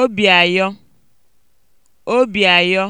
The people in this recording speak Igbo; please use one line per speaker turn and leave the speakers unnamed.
obi ayọ obi ayọ